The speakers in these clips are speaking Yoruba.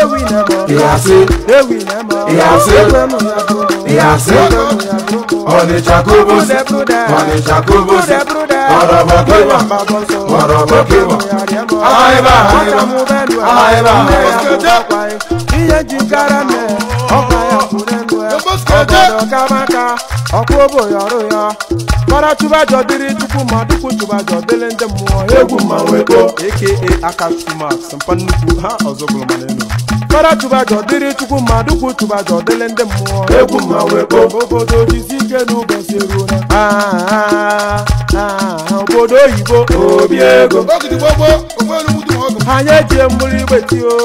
Ewi na mo. Ìyàsí. Ewi na mo. Ìyàsí. Ìyàsí. Onitsha kobos. Onitsha kobos. Ọ̀rọ̀bọ̀ kíwọ̀. Ọ̀rọ̀bọ̀ kíwọ̀. Àìbá àìbá. Àìbá àìbá. Iye jìkára mẹ́ ọkọ̀ ẹ̀kúrẹ́ lu ẹ̀. Ọ̀dọ̀ kàmáka mara chụbajọ dịrị chukwu ma dịkwu chụbajọ dịrị ndị mmụọ egwu mmanwụ ego aka akachukwu mpa nnukwu ha ọzọ bụrụ mana elu mara chụbajọ dịrị chukwu ma dịkwu chụbajọ dịrị ndị mmụọ egwu mmanwụ ego obodo jizi ike n'ụbọchị eruo ah, ah, ah. obodo oyibo obi ego anyị eji mmiri gbeti o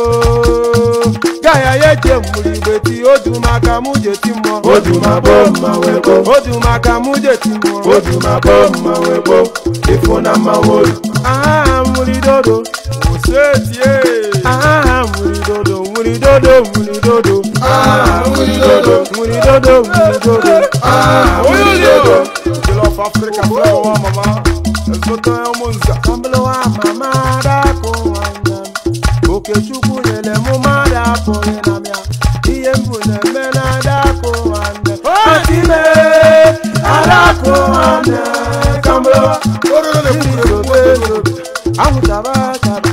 gaya ya eji mmiri gbeti odu maka mụ jeti mmụọ odu ma bo mma webo odu maka mụ jeti mmụọ odu ma bo mma webo ifo na mma wolu aha mmiri dodo osetie aha mmiri dodo mmiri dodo mmiri dodo aha mmiri dodo Africa fẹ́ mama. màmá ẹ̀sùn tán ẹ̀ mú nzà. Kambolo wa màmá dàkó wàndà. Òkè chukwu nyele mú má dàkó yẹnà mìà. Iye mbù nà mẹ́ nà dàkó wàndà. Ọ̀tí lè àdàkó wàndà. Kambolo wa. Orúkọ lè kúrò lè kúrò lè kúrò. Àwùjọba tàbí.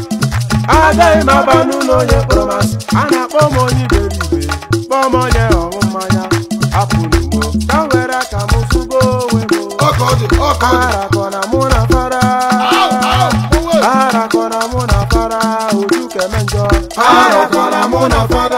Agaghị m aba n'ụlọ onye kpọrọ masị. A Harakona muna fara. Harakona muna fara. Ojú kẹ̀mẹ́jọ. Harakona muna fara.